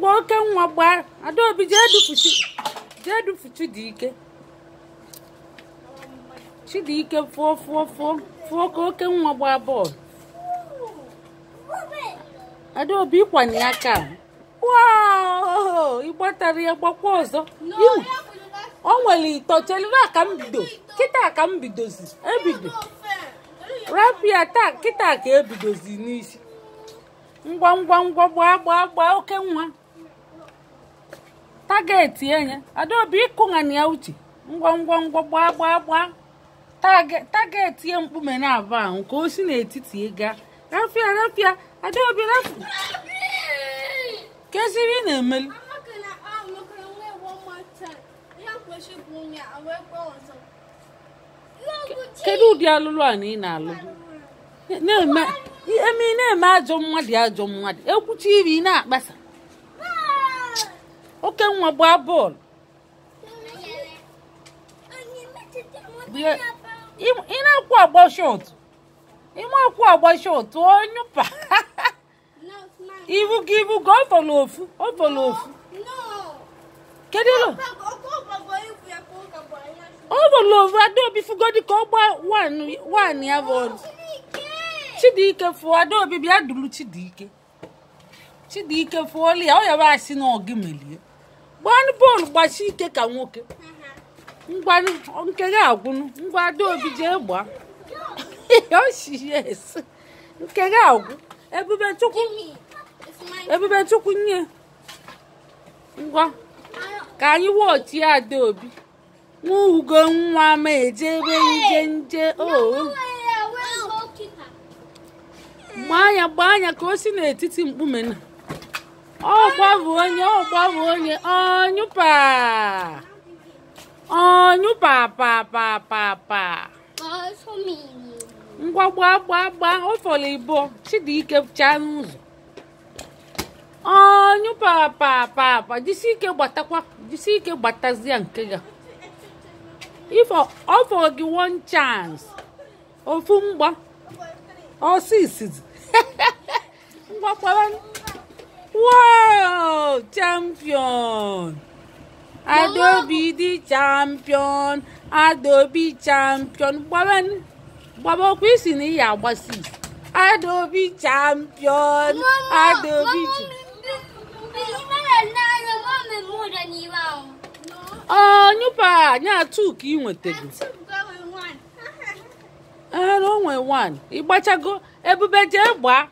gba oke nwa gbaa adaobi jee dufuchi jee dufuchi dị ike chidike fụọ fụọ fụọ fụọ ka oke nwa gbaa bọọlụ adaobi ịkwanye aka wow ịgbatara ya gbakwa ọzọ o nwere ito chelina ka m bido kịta ka m bidozi ebido rapia taa kịta ka ebidozi n'isi ngwa ngwa ngwa gbaa gbaa gbaa oke nwa tageti enye adaobi ịkụghania uche ngwa ngwa ngwa gbaa gbaa gbaa tageti ya mkpume na-abụ ahụ ka o si n'etiti ịga rafia rafia adaobi rafia kesiri ị na-emeli kedu ụdị alụlụ a na ị na-alụ eme ajọ mmadụ ajọ mmadụ ekwuchi iri na-akpasa oke nwa gbaa bọọlụ ị na-akwụ agba shot ime akwụ agba shot onyụpa ibu gị ibu gị ọbọlụ ofu ọbọlụ ofu kedu ịlụ ọbọlụ ofu adaobi fugodi ka ọ gbaa wan ya bọọlụ chidike fụọ adaobi bịa duru chidike chidike fụọlụ ya ọ yaba asị na ọ gị melie gbanụ bọọlụ gbachi ike ka nwoke ngwanụ nke gị agwụnụ ngwa adaobi jee gbaa yes nke gị agwụ ebubechukwu chukwu ebube nye ngwa ka anyị wọchie adaobi nwa ugo nwa ma ejebe nje nje o gbaa anya gbaa anya ka o si n'etiti mkpume na ọ gbabụ onye ọ gbabụ onye ọnyụpa ọnyụpa pa pa pa pa ngwa gba gba gba ọfọlọ ibo chidike chaa n'ụzọ ọnyụpa pa pa pa jisi ike gbatakwa jisi ike gbatazie nke ya ifo ọfọrọ gị one chance ofu mgba ọsịsịzi ngwa kpara world Champion! Adobe the champion! Adobe champion! Gbaba okwu isi na ihe agbasi. Adobe champion! Adobe Oh, nyupa! Nya ka ị nwetago. ebube jee gbaa.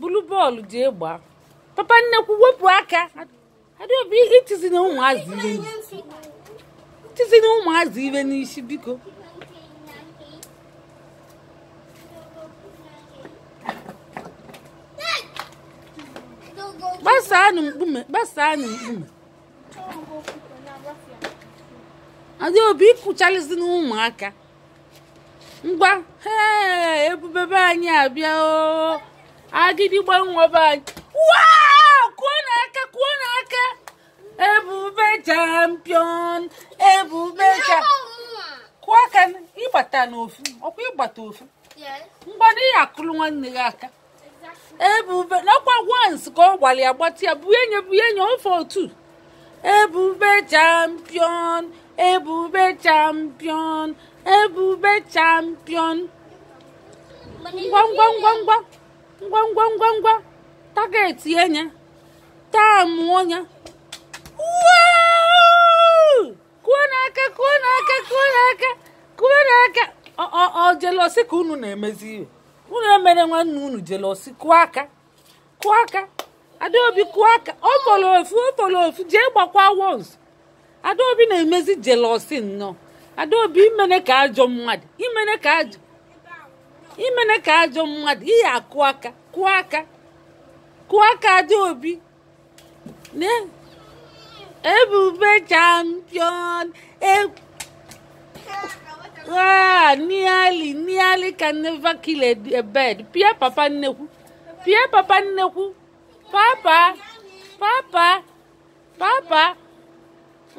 Bulu bọọlụ jee gbaa. papa nnekwu wepụ aka adaobi itizi na ụmụazị ibe itizi na ụmụazị ibe n'isi biko gbasaanụ mkpume gbasaanụ mkpume adaobi ịkụchalizi na ụmụaka ngwa ebube be anyị abịa o agidi gbanwe be anyị wow kwuo n'aka kwuo n'aka ebube champion ebube cha kwuo aka ịgbata n'ofu ọkwa ịgbata ofu mgbada ya akụrụ nwanne gị aka ebube nakwa once ka ọ gbara ya gbatị ya bụ enye bụ enye ofe otu ebube champion ebube champion ebube champion ngwa ngwa ngwa ngwa ngwa ngwa ngwa ngwa targeti enya taamụọ ya kuo n'aka kuo n'aka kuo n'aka kuo n'aka ọ jelosi ka unu na-emezi iwe unu emere nwanne unu jelosi kụọ aka kụọ aka adaobi kụọ aka ọ fọrọ ofu ọ fọrọ ofu jee gbakwa wons adaobi na-emezi jelosi nnọọ adaobi imene ka ajọ mmadụ imene ka ajọ imene ka ajọ mmadụ ihe akụ aka kụọ aka kụọ kadị obi ebube champion nearly ah, nearly can never kill a, a bird pịa papa nnekwu pịa papa nnekwu papa papa papa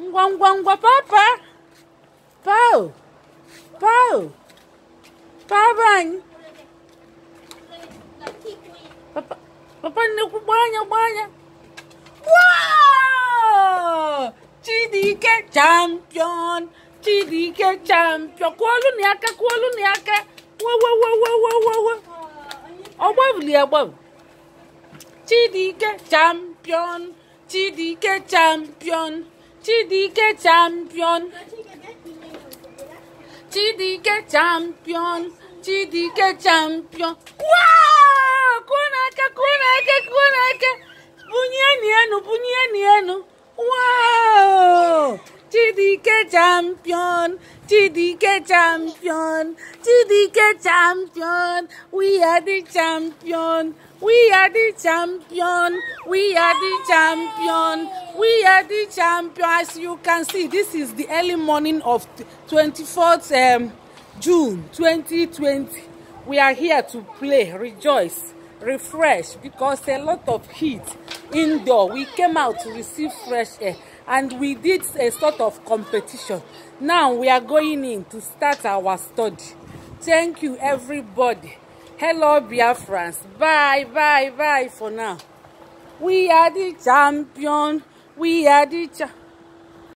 ngwa ngwa ngwa papa pao pao papa anyị papa nnekwu gbaa anya gbaa anya chidike champion chidike champion kụọlụ na aka kụọlụ na aka wewewewewewe ọgbabili agbabụ chidike champion chidike champion chidike champion chidike champion chidike champion wow! kunaka kunaka kunaka bunyieni enu bunyieni enu wow chidike champion chidike champion chidike champion we are the champion we are the champion we are the champion we are the champion as you can see this is the early morning of 24th um, june 2020 we are here to play rejoice refresh because a lot of heat indoor we came out to receive fresh air and we did a sort of competition now we are going in to start our study thank you everybody hello biafrans bye bye bye for now we are the champion we are the champion.